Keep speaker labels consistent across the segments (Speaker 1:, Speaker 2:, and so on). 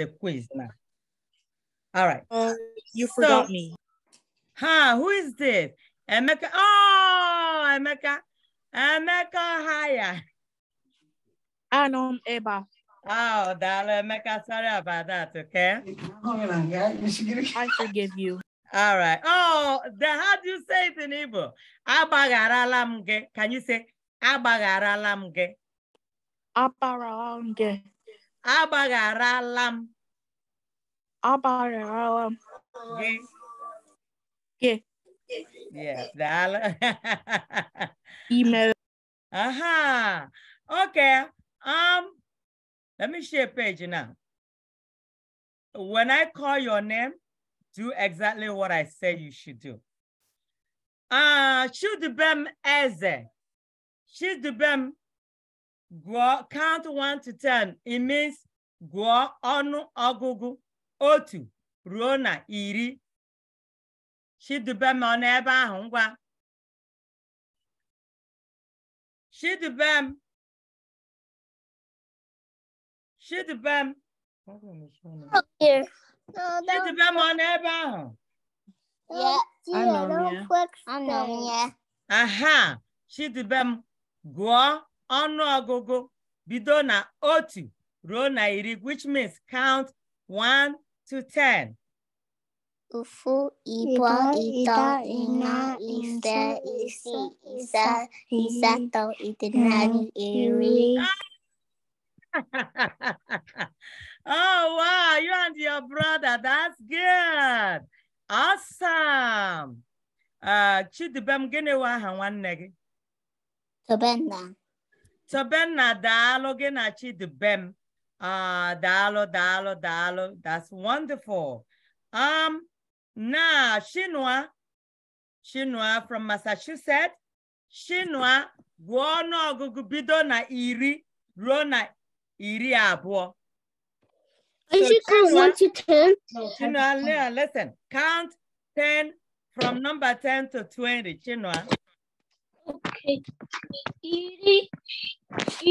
Speaker 1: the quiz now. All right. Uh, you forgot so, me. Huh? Who is this? Emeka. Oh, Emeka. Emeka Haya. Anom Eba. Oh, darling. Emeka. Sorry about that. Okay. I forgive you. All right. Oh, the, how do you say it in Igbo? Can you say Abagharalam ge? Agbaghara m.
Speaker 2: Agbaghara m. Gị. Gị.
Speaker 1: Yes, daalụ. I mere. Aha. Okay. Um, let me share page now. When I call your name, do exactly what I said you should do. Uh, should bem eze. Should bem Gụọ count 1 to 10. It means gụọ ọnụ
Speaker 2: ọgụgụ otu ruo na iri. Chidube m ọ n'ebe ahụ ngwa. Chidube m. Chidube m.
Speaker 1: Chidube
Speaker 2: m ọ n'ebe ahụ.
Speaker 1: Anọ m ya. Aha, Chidube m gụọ ọgụgụ bido na otu ruo na iri which means count 1 to 10.
Speaker 2: Ofu, ịbụọ, ise, isi isaa, ịsatọ, iri. oh,
Speaker 1: wow. You and your brother. That's good. Awesome. Uh, Chidibem, gịnị wa aha nwanne gị? Tobenna daalụ gị na bem Ah, daalụ daalụ daalụ. That's wonderful. Um, now Chinois, Chinois from Massachusetts. Chinois, Guano ọnụọgụgụ na iri ruo na iri abo.
Speaker 2: So Chinua, count one to ten? Chinois,
Speaker 1: listen. Count ten from number ten to twenty. Chinois. Okay.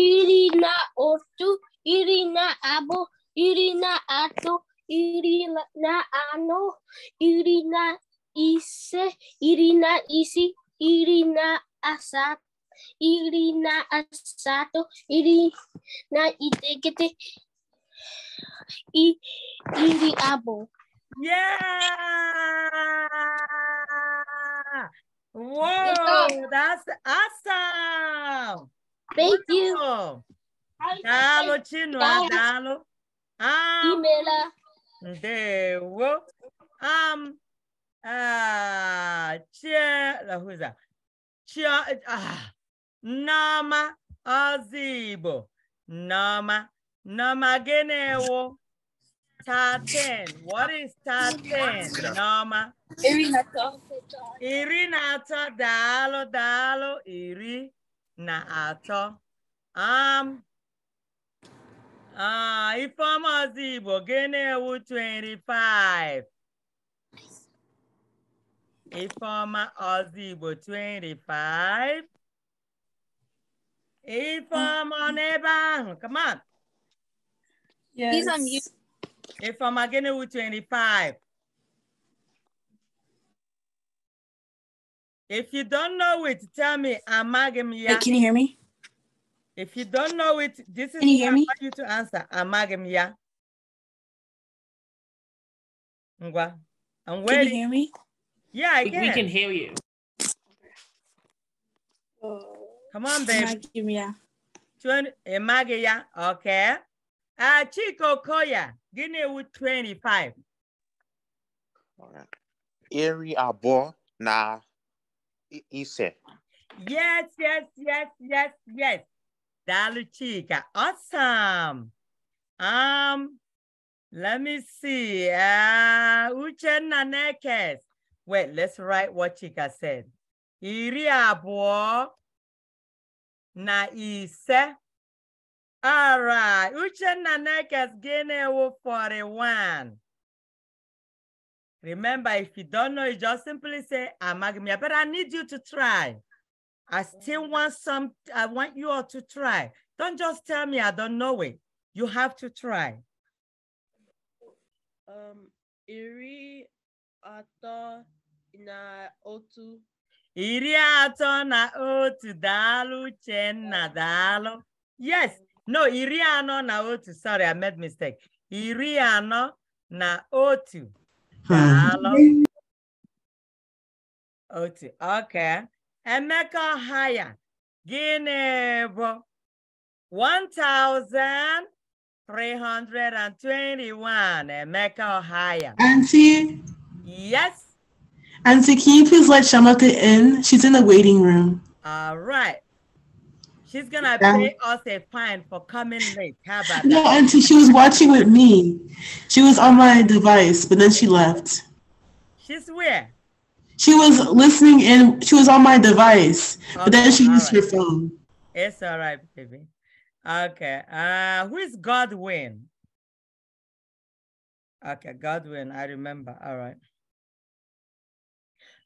Speaker 2: Irina Otu, Irina Abo, Irina Ato, Irina Ano, Irina Ise, Irina Isi, Irina asat, Irina Asato, Irina Itegete, Iri Abo. Yeah!
Speaker 1: Whoa, that's awesome. Thank Wonderful. you.
Speaker 2: Ah, dalo,
Speaker 1: Chino, ah. dalo. Um, there we go. Um, uh, ah, chia, who's that? Chia, ah, Nama Azibo. Nama, Nama Genewo. Top 10. What is top 10, Norma? Irinata. Irinata, dalo, dalo, irinato. Um, uh, ah, Ifeoma Ozigbo, Genewu 25. Ifeoma Ozigbo 25. Ifeoma on mm-hmm. ebe ahụ, come on.
Speaker 2: Yes. He's on mute.
Speaker 1: If I'm Ifeoma Gini with 25. If you don't know it, tell me. I'm Amagim ya. Hey, can you hear me? If you don't know it, this is can you hear me? you to answer. I'm Ngwa.
Speaker 2: I'm waiting. Can you hear me? Yeah, I can. We can hear you. Oh, Come on, baby. Amagim ya.
Speaker 1: 20, Amagim ya. Okay. Uh, Chico Koya, Guinea with 25. All right. Eri Abo na Ise. Yes, yes, yes, yes, yes. Dalu Chica. Awesome. Um, let me see. Uh, Uche Nanekes. Wait, let's write what Chica said. Iri Abo na Ise. All right. Uchenna Nekas Genewo 41. Remember, if you don't know, you just simply say, Amagmia, but I need you to try. I still want some, I want you all to try. Don't just tell me I don't know it. You have to try. Um, iri ato na otu. Iri ato na otu, dalu chenna dalu. Yes, no iri anọ na otu sorry i made mistake iri anọ na otu hmm. otu okay emeka haya gịnị bụ 1321 emeka higher. auntie yes
Speaker 2: auntie can you please let shamata in she's in the waiting room
Speaker 1: all right She's gonna pay us a fine for coming late. How about no, that? No, Auntie,
Speaker 2: she was watching with me.
Speaker 1: She was on my device, but then she left. She's where? She was
Speaker 2: listening and she was on my device, okay, but then she used right. her phone.
Speaker 1: It's all right, baby. Okay. Uh, who is Godwin? Okay, Godwin, I remember. All right.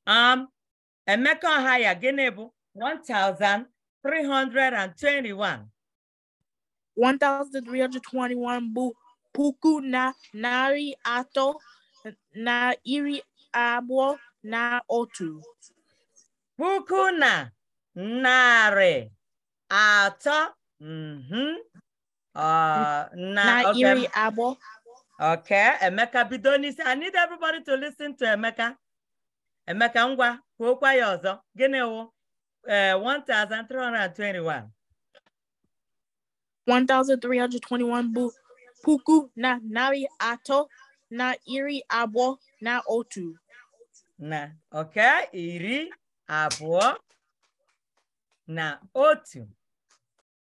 Speaker 1: Um, Emeka Haya, Genebu, 1,000. 1,321. bụ puku na narị atọ na iri abụọ na otu. Puku na narị atọ mm-hmm. uh, na iri abụọ. ok Emeka bido n'isi. I need everybody to listen to Emeka. Emeka ngwa kwuokwa ya ọzọ. Gịnị wụ? uh, 1,321.
Speaker 2: 1,321 bụ puku na nari
Speaker 1: ato na iri abụọ na otu. Na, okay, iri abụọ na otu.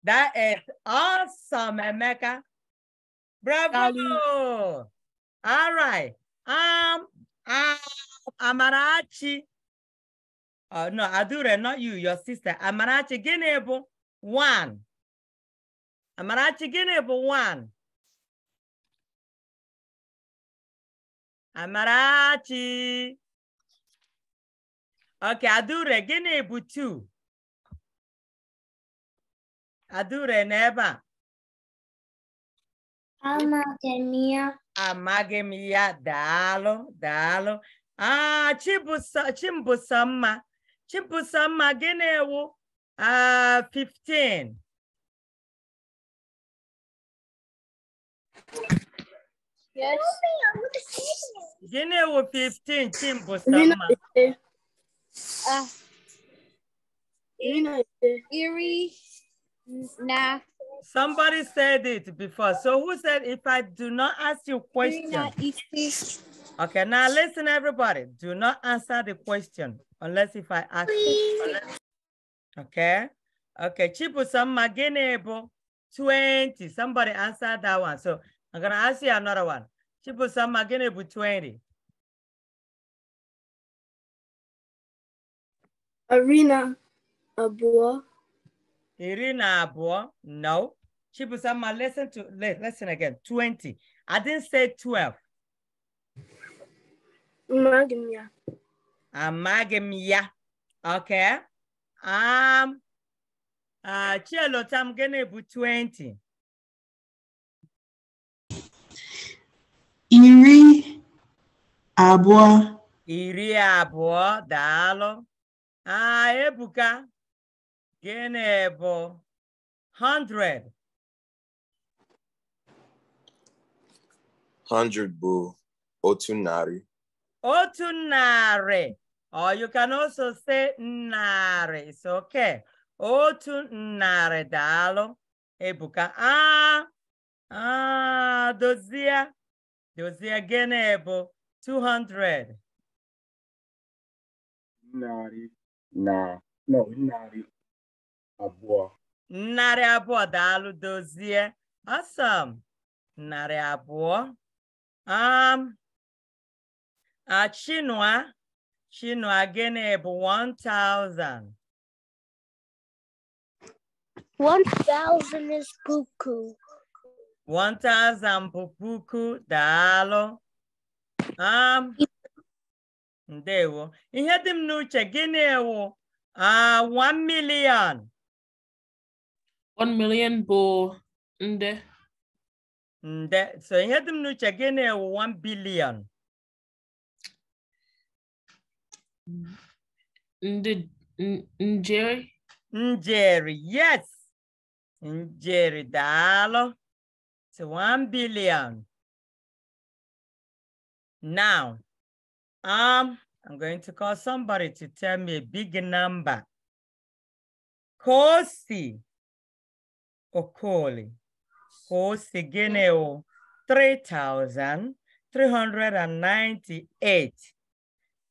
Speaker 1: That is awesome, Emeka. Bravo! All right. Um, um, Amarachi. Uh, no, Adure, not you, your sister. Amarachi Ginebu, one.
Speaker 2: Amarachi Ginebu, one. Amarachi. Okay, Adure, Ginebu, two. Adure, never. Amagemia.
Speaker 1: Amagemia, dalo, dalo. Ah, Chimbusamma.
Speaker 2: Chibusama Genewu, Ah, uh, 15. Yes. Genewu 15, Chimbusama. Ah. Eerie,
Speaker 1: Na. Somebody said it before. So who said, if I do not ask you question? Okay, now listen, everybody. Do not answer the question. unless if I ask you. Okay. Okay. Chibusama Ginebo 20. Somebody answer that one. So I'm going to ask you another one. Chibusama Ginebo 20.
Speaker 2: Irina Abua.
Speaker 1: Irina Abua. No. Chibusama, listen to listen again. 20. I didn't say 12.
Speaker 2: Magmia.
Speaker 1: amaghị m ya oke am um, uh, chielotam gịnị bụ 20
Speaker 2: iri abụọ
Speaker 1: iri abụọ daalụ aa uh, ebuka gịnị bụ 100 100 bụ otu narị otu narị or oh, you can also say narị it's okay otu narị daalụ ebuka a a dozie dozie gịnị bụ 200
Speaker 2: narị na no abụọ
Speaker 1: abụọ daalụ dozie awesome narị abụọ um, Uh, Chinua, Chinua gịnị bụ 1,000?
Speaker 2: 1,000 is puku.
Speaker 1: 1,000 bụ puku, daalụ. Um, ndewo. Ihe dị m n'uche, gịnị wụ uh, ah, 1 million? 1 million bụ nde. Nde. So ihe dị m n'uche, gịnị wụ 1 billion? Ndị njeri. Njeri, yes. Njeri, daalụ. It's one billion.
Speaker 2: Now, um, I'm going to call somebody to tell me a big number. Kosi
Speaker 1: Okoli. Kosi Gineo, 3,398.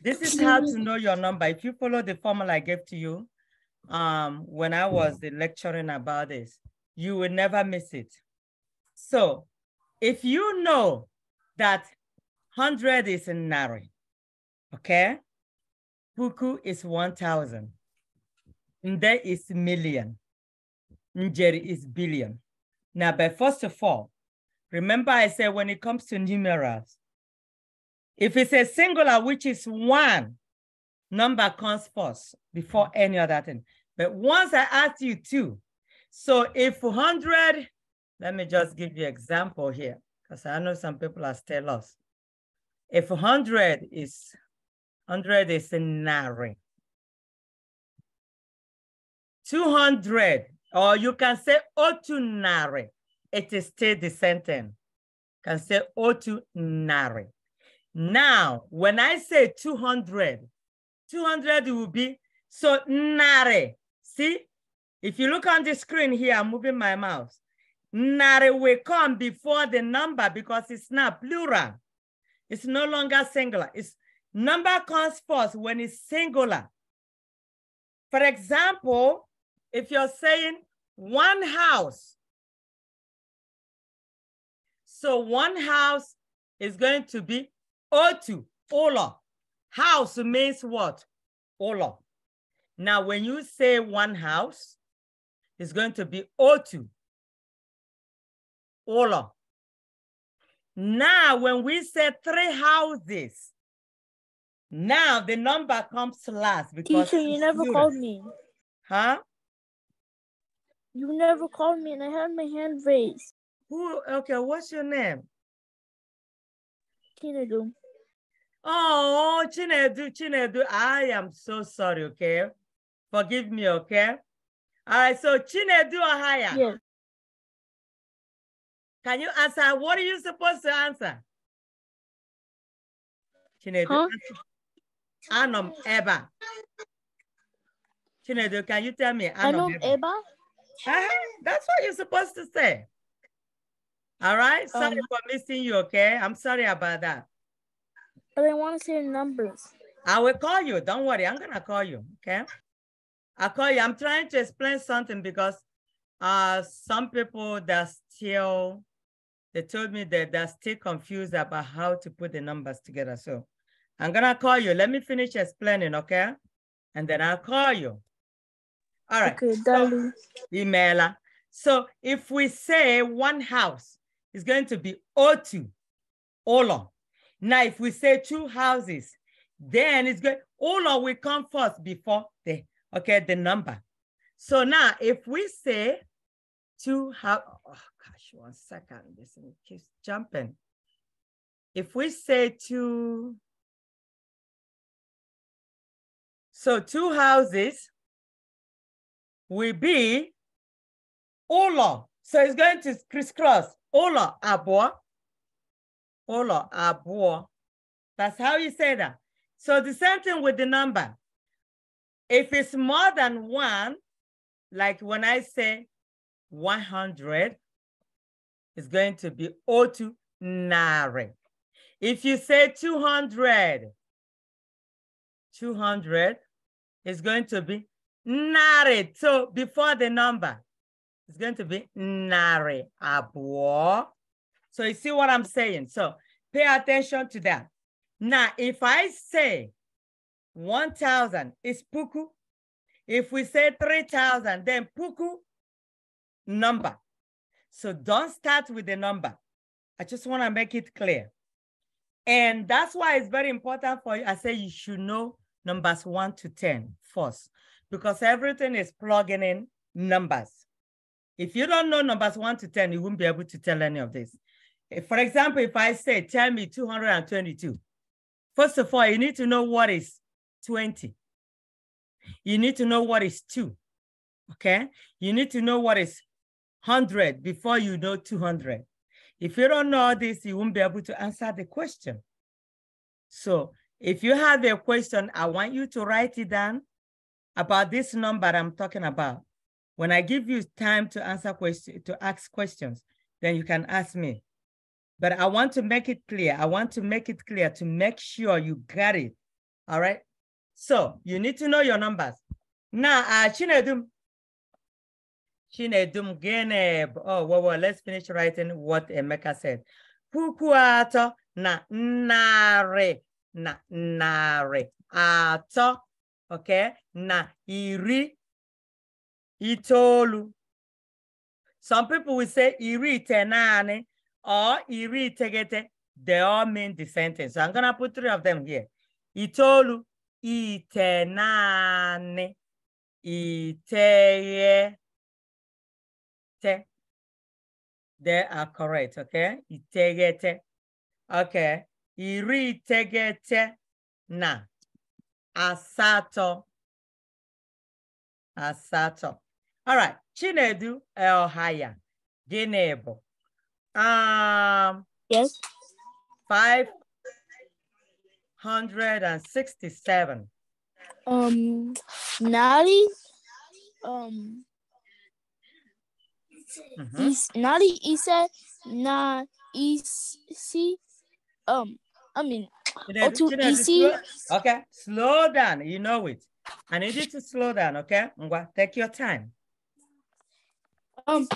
Speaker 1: This is how to know your number. If you follow the formula I gave to you um, when I was lecturing about this, you will never miss it. So if you know that 100 is in Nari, okay? Puku is 1,000. Nde is million. Njeri is billion. Now, but first of all, remember I said when it comes to numerals, if it's a singular, which is one, number comes first before mm-hmm. any other thing. But once I ask you two, so if 100, let me just give you example here, because I know some people are still lost. If 100 is, 100 is a nari. 200, or you can say otunari. It is still the same can say otunari. Now, when I say 200, 200 will be, so nare. See, if you look on the screen here, I'm moving my mouse. Nare will come before the number because it's not plural. It's no longer singular. It's number comes first when it's singular. For example, if you're saying one house, so one house is going to be Otu, Ola. House means what? Ola. Now, when you say one house, it's going to be Otu, Ola. Now, when we say three houses, now the number comes last because teacher, you never students. called
Speaker 2: me. Huh? You never called me, and I had my hand raised. Who? Okay, what's your name? Tinadu.
Speaker 1: Oh, Chinedu, Chinedu, I am so sorry, okay? Forgive
Speaker 2: me, okay? All right, so Chinedu ahaya. Yeah. Can you answer? What are you supposed to answer? Chinedu, huh?
Speaker 1: Anom Eba. Chinedu, can you tell me? Anom Eba? Eba? Uh -huh. That's what you're supposed to say. All right, sorry um, for missing you, okay? I'm sorry about that.
Speaker 2: But I want to see the numbers.
Speaker 1: I will call you. Don't worry. I'm going to call you. Okay. I'll call you. I'm trying to explain something because uh, some people that still, they told me that they're still confused about how to put the numbers together. So I'm going to call you. Let me finish explaining. Okay. And then I'll call you. All right. Okay, Dali. So, So if we say one house is going to be 0 now, if we say two houses, then it's good. All We come first before the, okay, the number. So now if we say two house, oh gosh,
Speaker 2: one second, this keeps jumping. If we say two, so two houses will be Ola. So it's going to
Speaker 1: crisscross Ola Abua Olo abo. That's how you say that. So the same thing with the number. If it's more than one, like when I say 100, it's going to be otu nare. If you say 200, 200 is going to be nare. So before the number, it's going to be nare abo. So you see what I'm saying? So pay attention to that. Now, if I say 1,000 is puku, if we say 3,000, then puku number. So don't start with the number. I just want to make it clear. And that's why it's very important for you. I say you should know numbers one to ten first, because everything is plugging in numbers. If you don't know numbers one to 10, you won't be able to tell any of this. For example, if I say, tell me 222, first of all, you need to know what is 20. You need to know what is two, okay? You need to know what is 100 before you know 200. If you don't know this, you won't be able to answer the question. So if you have a question, I want you to write it down about this number I'm talking about. When I give you time to answer question, to ask questions, then you can ask me. But I want to make it clear. I want to make it clear to make sure you got it. All right. So you need to know your numbers. Now, uh, Chinedum. Chinedum Geneb. Oh, well, well, let's finish writing what Emeka said. Kukuato na nare. Na nare. Ato. Okay. Na iri. Itolu. Some people will say iri tenane. or iri itegete, they all mean the sentence So I'm gonna put three of them here. Itolu, itenane, iteye, They are correct, okay? Itegete. Okay. Iri iteghete na. Asato. Asato. All right. Chinedu Elhaya. Gịnị bụ Um, yes. 567.
Speaker 2: Um, Nari. Um, mm -hmm. is, Nari is a, is easy. Um, I mean, or too Slow,
Speaker 1: okay, slow down. You know it. I need you to slow down, okay? Take your time.
Speaker 2: Um,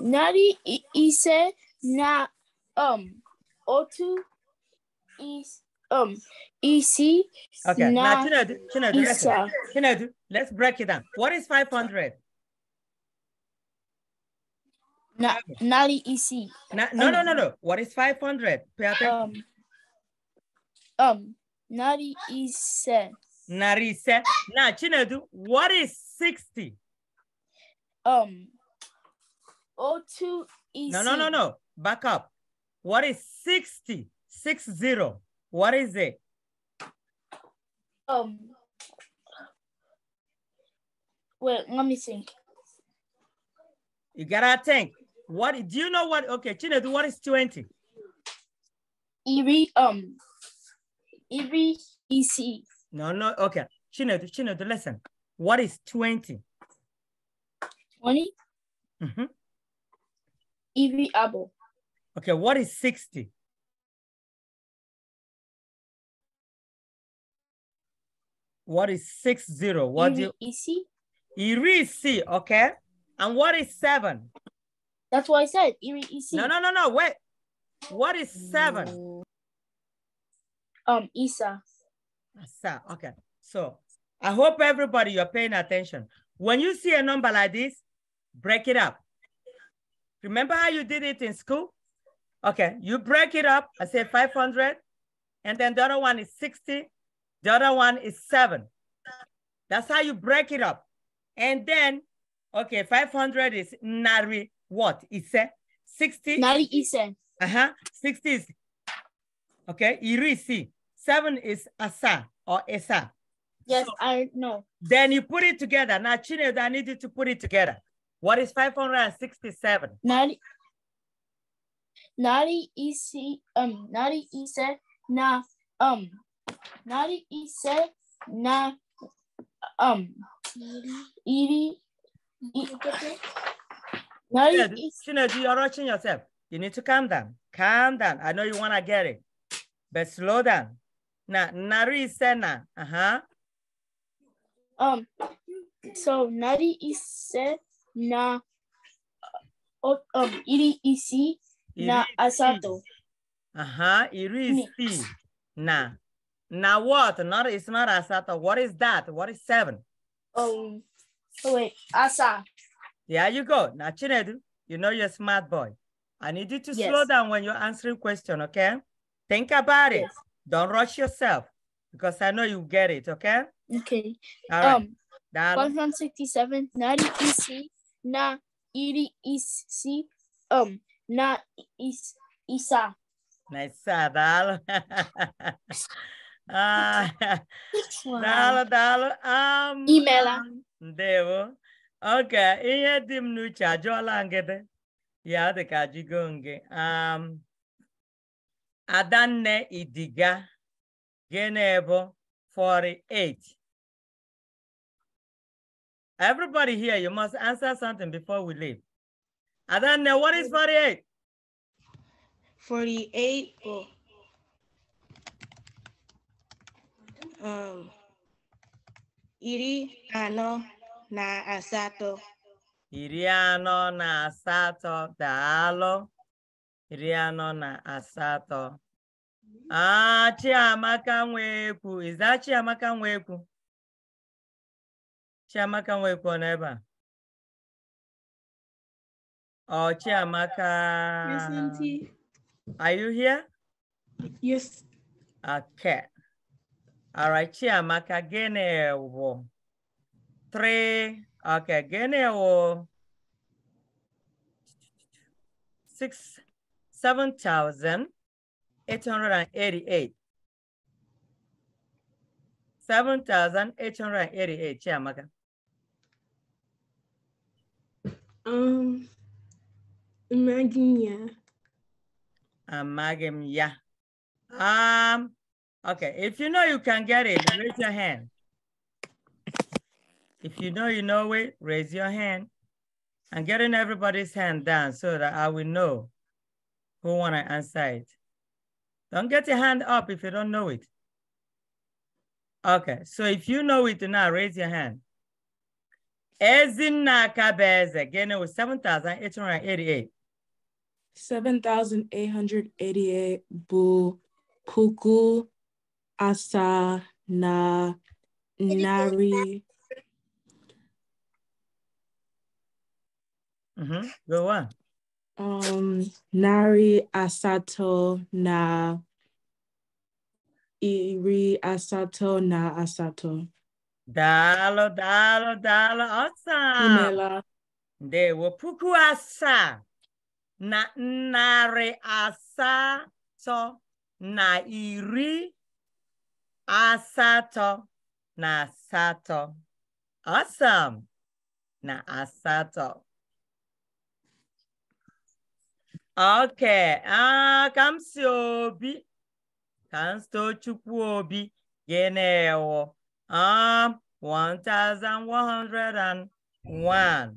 Speaker 2: Nari a now, um, O2 is um EC. Okay, now Chinodu, Chinodu, listen. Chinodu,
Speaker 1: let's break it down. What is 500?
Speaker 2: Na, Nali
Speaker 1: EC. Na, no, um, no, no, no. What is 500? Pay attention. Um, um, Nali EC. Nari EC. Now, Chinedu, what is 60? Um, O2 EC. No, no, no, no back up. What is 60? Six zero. What is it? Um. Wait, let me think. You gotta think. What do you know? What? Okay, Chinedu, what is twenty? Evi um. Evi EC. No, no. Okay, Chinedu, Chinedu, listen. What is twenty?
Speaker 2: Twenty. Mm-hmm. Every apple. Okay, what is 60? What is six zero? What Iri, do you
Speaker 1: EC? Irisi, okay. And what is seven? That's what I said. Iri EC. No, no, no, no. Wait. What is seven? Um, Isa. Isa. Okay. So I hope everybody you're paying attention. When you see a number like this, break it up. Remember how you did it in school? Okay, you break it up. I say 500, and then the other one is 60, the other one is seven. That's how you break it up. And then, okay, 500 is nari what? Ise? 60? Nari ise. Uh-huh, 60 is, okay, irisi. Seven is asa or esa. Yes, so, I know. Then you put it together. Now, Chinedu, I need you to put it together. What is 567? Nari
Speaker 2: Nari isi um nari ise na um nari ise na um iri
Speaker 1: nari yeah, Shinedu, you're rushing yourself. You need to calm down. Calm down. I know you wanna get it, but slow down. Na nari ise na. Uh-huh. Um so
Speaker 2: nari ise na um iri isi
Speaker 1: na asato. Uh-huh. Irisi. Na. Na what? Not it's not asato. What is that? What is seven? Um
Speaker 2: wait, asa.
Speaker 1: There you go. Now Chinedu, you know you're a smart boy. I need you to yes. slow down when you're answering question, okay? Think about it. Yes. Don't rush yourself because I know you get it, okay? Okay. All right. Um,
Speaker 2: 167, 90 EC, na, ED, um, not is Isa.
Speaker 1: Isa, dalo. ah, dalo, dalo. Um, Imela. Devo. Okay, ihe dimnu m n'uche ajụọla Ya dị ka jigo
Speaker 2: Um, Adanne Idiga, gịnị 48?
Speaker 1: Everybody here, you must answer something before we leave. Adana, what is 48?
Speaker 2: 48, oh. um, iri ano na asato.
Speaker 1: Iri ano na asato, daalụ. Iri ano na asato. Ah, Chiamaka
Speaker 2: Nwekwu, is that Chiamaka Nwekwu? Chiamaka Nwekwu ọ nọ ebe a? Oh, Chiamaka.
Speaker 1: Present. Are you here? Yes. Okay. All right, Chiamaka Genewo. Three. Okay, Genewo. Six, seven thousand eight hundred and eighty-eight. Seven thousand eight hundred and eighty-eight, Chiamaka. Um,
Speaker 2: Imagine,
Speaker 1: Amalgam, yeah. Um, okay, if you know you can get it, raise your hand. If you know you know it, raise your hand. I'm getting everybody's hand down so that I will know who wanna answer it. Don't get your hand up if you don't know it. Okay, so if you know it now, raise your hand. Ezinakabeze, again, it was 7,888.
Speaker 2: 7,888 bu puku asa na nari.
Speaker 1: Mm-hmm. Go on.
Speaker 2: Um,
Speaker 1: nari asato na iri asato na asato. Dalo, dalo, dalo, awesome. Inela. De puku asa. na narị asatọ na iri asatọ na asatọ asam na asatọ okay ah ka m si obi ka m chukwu obi gịnị 1101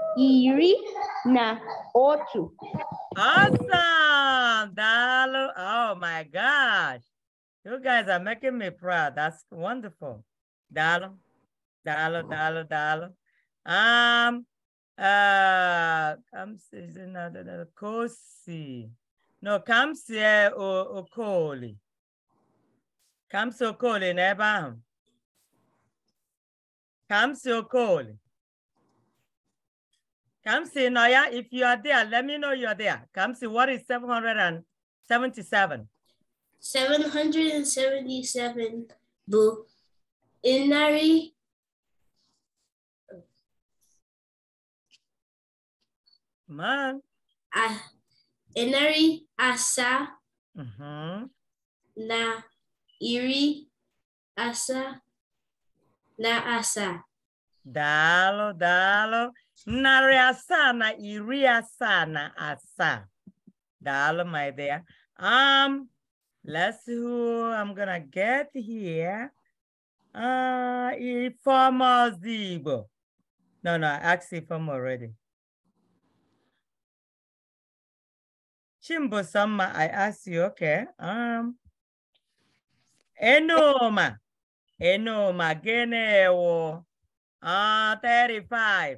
Speaker 2: iri na ocho. Awesome,
Speaker 1: dalo. Oh my gosh. You guys are making me proud. That's wonderful. Dalo, dalo, dalo, dalo. Um, uh, kamsi am is another Kosi. No, kamsi Kamsie uh, Okoli. Kamsie Okoli, Nebam. Kamsie Okoli. Come see Noya, if you are there, let me know you are there. Come see what is 777?
Speaker 2: 777 Boo. Inari Man. Uh, Inari Asa mm -hmm. Na Iri Asa Na Asa.
Speaker 1: Dalo, dalo. narị asaa na iri asaa na asaa. Daalụ, my dear. Um, let's see who I'm gonna get here. Uh, Ifeoma Ozigbo. No, no, I asked Ifeoma already. Chimbosama, I asked you, okay. Um, Enoma. Enoma, Gịnị Uh, 35.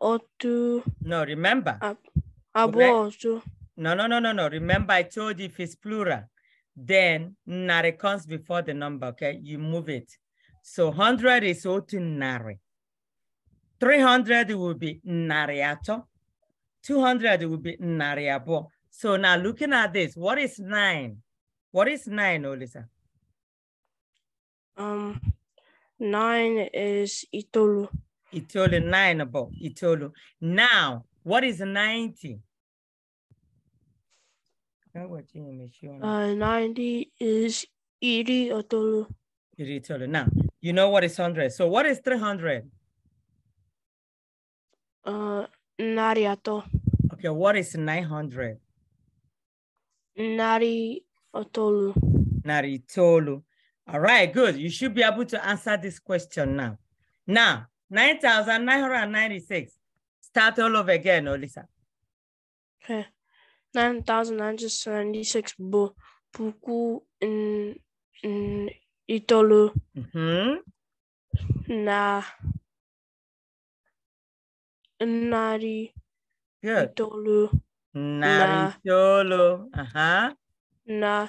Speaker 1: otu. No, remember. Abo otu. No, no, no, no, no. Remember, I told you if it's plural, then nare comes before the number, okay? You move it. So 100 is otu nare. 300 will be nariato. 200 will be nariabo. So now looking at this, what is nine? What is nine, Olisa? Um, nine is itolu. Itolo, nine about Itolo. Now, what is 90? Uh,
Speaker 2: 90 is Iri Otolo.
Speaker 1: Iri Now, you know what is 100. So what is 300?
Speaker 2: Uh, Nariato. Okay,
Speaker 1: what is 900? Nari Otolu. Nari Tolu. All right, good. You should be able to answer this question now. Now, 9,996. Start all over again, Olisa.
Speaker 2: Okay. 9,996 bo puku in, in itolu. Mm-hmm. Na nari Good. itolu. Nari na, itolu. Uh-huh. Na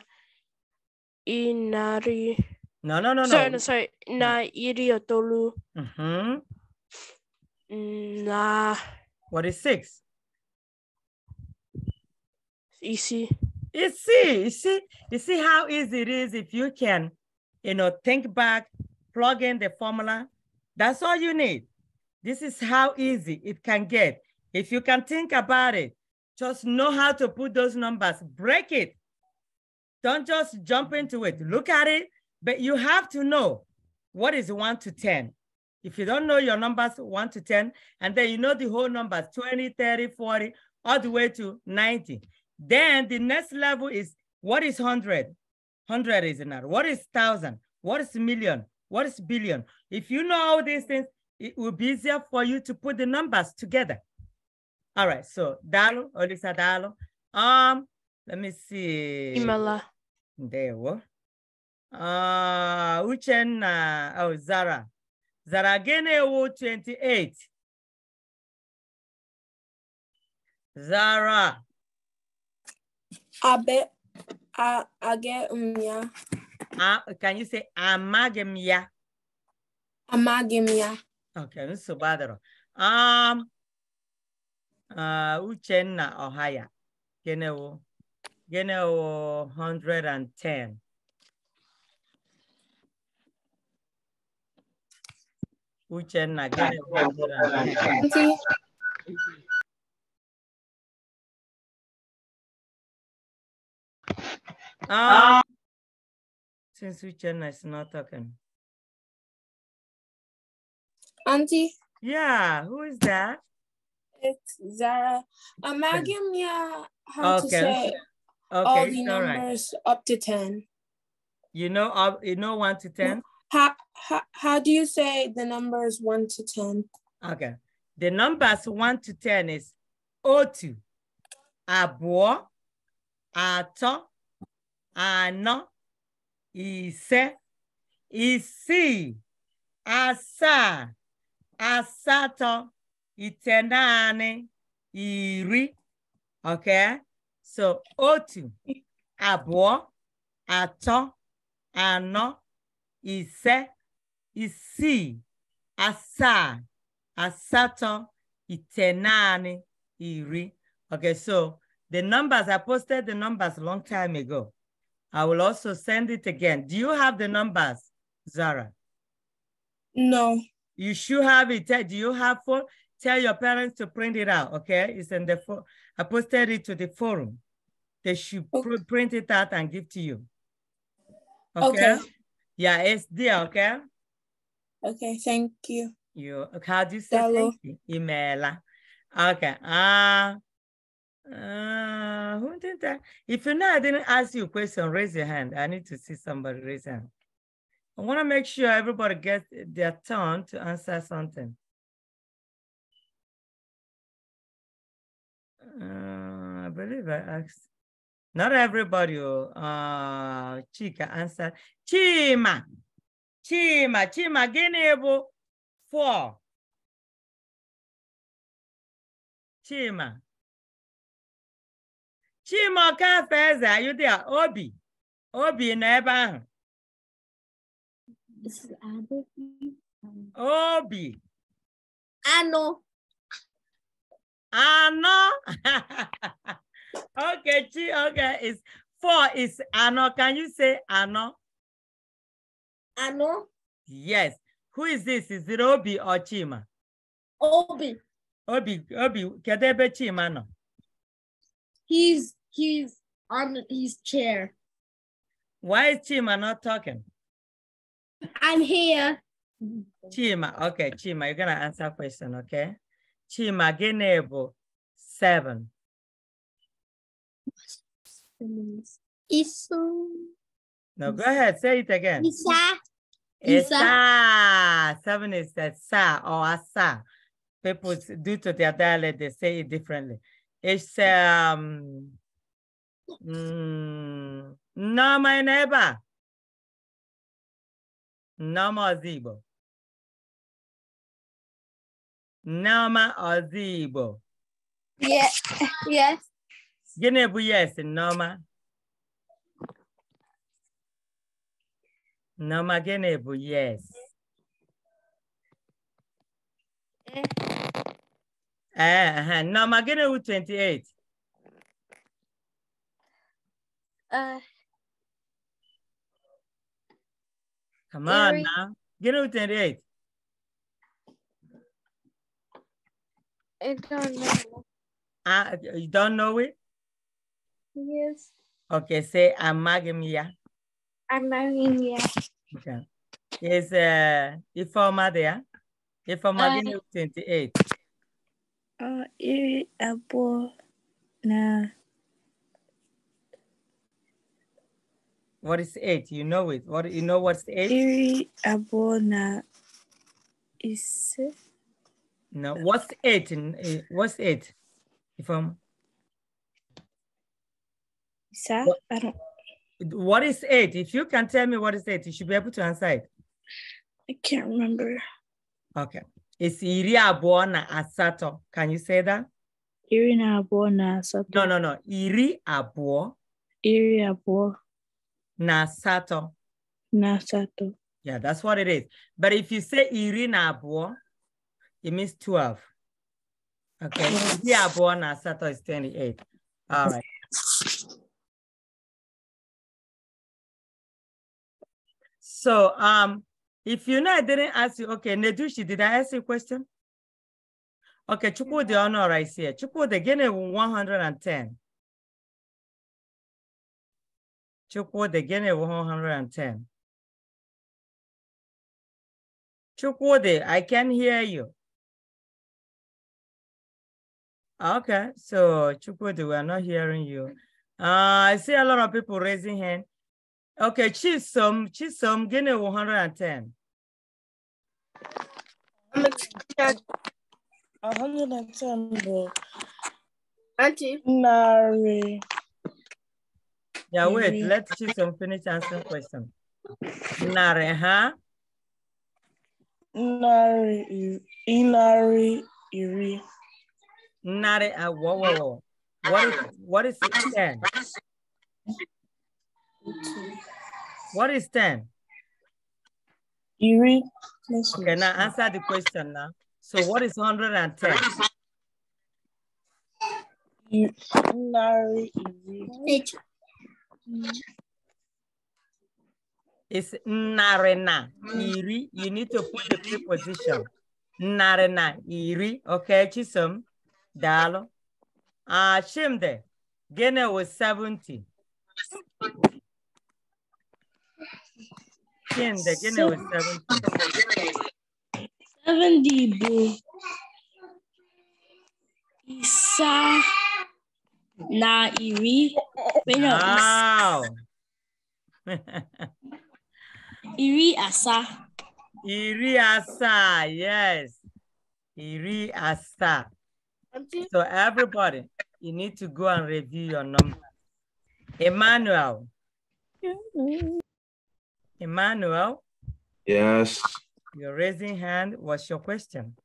Speaker 1: inari. No, no, no, sorry, no. Sorry, Na iri itolu. Mm-hmm. Mm, nah. What is six? Easy. Easy. You see, you see how easy it is if you can, you know, think back, plug in the formula. That's all you need. This is how easy it can get. If you can think about it, just know how to put those numbers, break it. Don't just jump into it. Look at it, but you have to know what is one to 10. If you don't know your numbers, one to 10, and then you know the whole numbers, 20, 30, 40, all the way to 90. Then the next level is what is 100? 100 is another. What is 1,000? What is million? What is billion? If you know all these things, it will be easier for you to put the numbers together. All right, so Dalo, Olisa Dalo. Um, let me see. Imala. There we Uh, Uchenna, oh, Zara. zara
Speaker 2: Genewu 28 zara abe a agị m ya
Speaker 1: can you say amaghị m ya
Speaker 2: amaghị m ya
Speaker 1: okay nsogbu adịrọ um uh, Uchenna Ọhaya Genewu Genewu 110
Speaker 2: Uchenna, give me Ah, since Uchenna is not talking. Auntie.
Speaker 1: Yeah,
Speaker 2: who is that? It's Zara. Uh, I'm um, giving how okay. to say okay. all the numbers up to 10.
Speaker 1: You know, uh, you know, one to 10?
Speaker 2: How, how, how do you say the numbers
Speaker 1: 1 to 10? Okay. The numbers 1 to 10 is otu, abo atọ, anọ, ise, isi asa asatọ, itenanị, iri. Okay? So otu, abo atọ, anọ, ise, isi, asaa, asato, itenani, iri. Okay, so the numbers, I posted the numbers a long time ago. I will also send it again. Do you have the numbers, Zara? No. You should have it. Do you have phone? Tell your parents to print it out, okay? It's in the phone. I posted it to the forum. They should okay. print it out and give to you. Okay. okay. Yeah, it's there, okay?
Speaker 2: Okay, thank you.
Speaker 1: You, how do you say thank you? Imela. Ah. Okay. Uh, uh, who did that? If you know I didn't ask you a question, raise your hand. I need to
Speaker 2: see somebody raise hand. I want to make sure everybody gets their turn to answer something. Uh, I believe I asked. Not everybody. Uh, Chika answered. Chima. Chima. Chima. Gịnị bụ four? Chima. Chima Okafe Eze, are you there? Obi. Obi nọ ebe ahụ. Obi. Anọ. Anọ.
Speaker 1: Okay, G, okay, it's four is Ano. Can you say Ano? Ano? Yes. Who is this? Is it Obi or Chima? Obi. Obi, Obi, Kadebe Chima no.
Speaker 2: He's he's on his chair. Why is
Speaker 1: Chima not talking?
Speaker 2: I'm here.
Speaker 1: Chima, okay, Chima, you're gonna answer question, okay? Chima, Genebo, seven.
Speaker 2: Isu. No, go ahead. Say it again. Isa.
Speaker 1: Isa. Seven is that sa or asa. People, due to their dialect, they say it differently. It's
Speaker 2: um, mm, no, my neighbor. Nama Zibo. Nama Azibo. Yes.
Speaker 1: Yes. Gịnị bụ yes Nneọma? Nneọma gịnị bụ yes? Ee, eh, eh, eh, Nneọma gịnị bụ 28?
Speaker 2: Uh, Come on Mary. now. Get out 28. I don't know.
Speaker 1: I, ah, you don't know it? Yes. Okay, say Amagemia.
Speaker 2: Amagemia.
Speaker 1: Okay. Is uh, Ifoma there? Ifoma uh, 28.
Speaker 2: Uh, iri abo na.
Speaker 1: What is eight? You know it. What you know? What's eight? Iri
Speaker 2: abo na. Is.
Speaker 1: No. What's eight? Eh, what's eight? Ifoma sir? What, I don't. What is it? If you can tell me what is it, you should be able to answer it. I can't remember. Okay. It's iri abụọ na asatọ. Can you say that? Iri na na asatọ. No, no, no. Iri abụọ. Iri abụọ. Na asatọ. Na asatọ. Yeah, that's what it is. But if you say iri na abụọ, it means 12. Okay. Iri abụọ na asatọ is 28.
Speaker 2: All right. So um, if you know I didn't ask you, okay, Nedushi, did I
Speaker 1: ask you a question? Okay, Chukwudi Honor I here. Chukwudi, gịnị 110?
Speaker 2: Chukwudi, gịnị 110? Chukwudi, I can hear you. Okay, so
Speaker 1: Chukwudi, we are not hearing you. Uh, I see a lot of people raising hand. Okay, Chisom, Chisom, give me 110.
Speaker 2: 110 Auntie narị.
Speaker 1: Yeah, wait, let Chisom finish answering question. Narị ha? Narị
Speaker 2: ịnarị iri.
Speaker 1: Narị uh, awọwọwọ. What is what is 10? What is 10? Eerie. Okay, now answer the question now. So what is 110? It's narena, iri. You need to put the preposition. Narena, iri. Okay, Chisom. Dalo. Ashimde. Ah, Gene was 70.
Speaker 2: 10. The general 70. 70, boo. Isa na iri. Wait, no. Wow.
Speaker 1: iri asa. Iri asa, yes. Iri asa. So everybody, you need to go and review your number. Emmanuel. Mm-hmm. Emmanuel. Yes. You're raising hand. What's your question?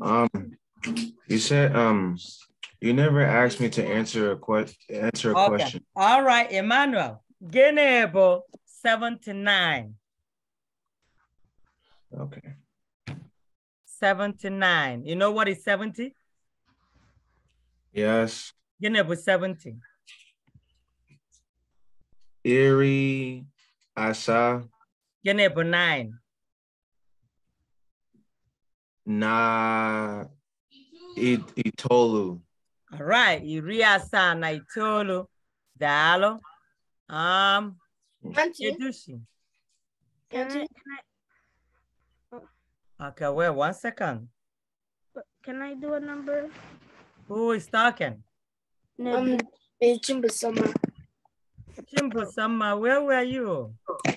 Speaker 2: Um, you said um, you never asked me to answer a question. Answer a okay. question.
Speaker 1: All right, Emmanuel. Genebo seventy nine. Okay. Seventy nine. You know what is seventy? Yes. Genebo seventy.
Speaker 2: Erie, Asha.
Speaker 1: Yan po, nine.
Speaker 2: Na it, Itolu.
Speaker 1: All right, Iriasa na Itolu. Dalo. Um, Auntie. Edushi.
Speaker 2: I? Oh.
Speaker 1: Okay, wait one second.
Speaker 2: Can I do a number?
Speaker 1: Who is talking?
Speaker 2: No, um, it's Chimbasoma.
Speaker 1: Chimbo Sama, where were you? Um,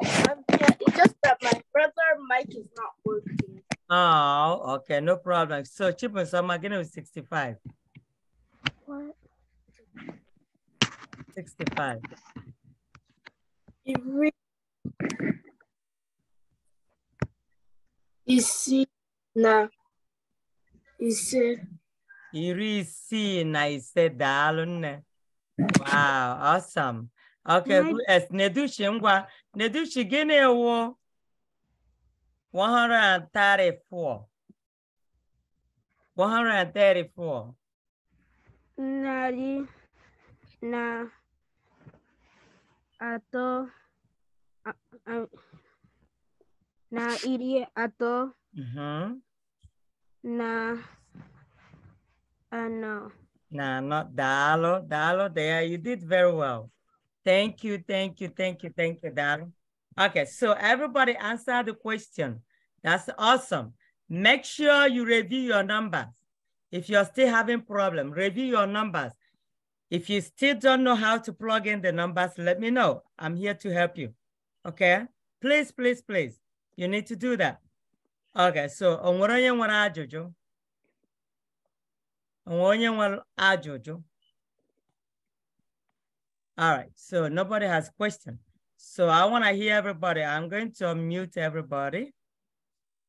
Speaker 1: yeah, it's just that my brother
Speaker 2: Mike is not working.
Speaker 1: Oh, okay, no problem. So Chimbo Sama, again, was 65. What? 65.
Speaker 2: It Isina. Ise.
Speaker 1: Iri isi na ise daalụ nne. Wow, awesome. Okay, who is Nedushi Ngwa? Nedushi Ginewo 134. 134.
Speaker 2: Nari na ato na iri ato uh mm-hmm. -huh. na ano
Speaker 1: no, not Dalo. Dalo, there, you did very well. Thank you, thank you, thank you, thank you, Dalo. Okay, so everybody answer the question. That's awesome. Make sure you review your numbers. If you're still having problem, review your numbers. If you still don't know how to plug in the numbers, let me know. I'm here to help you. Okay? Please, please, please. You need to do that. Okay, so onwere ajụjụ onye nwere ajụjụ all right so nobody has question so i want to hear everybody i'm going to unmute everybody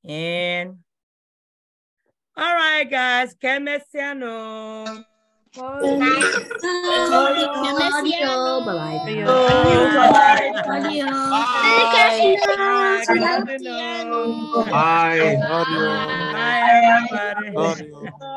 Speaker 1: and all right guys kemesiano Bye.
Speaker 2: Bye. Bye. Bye.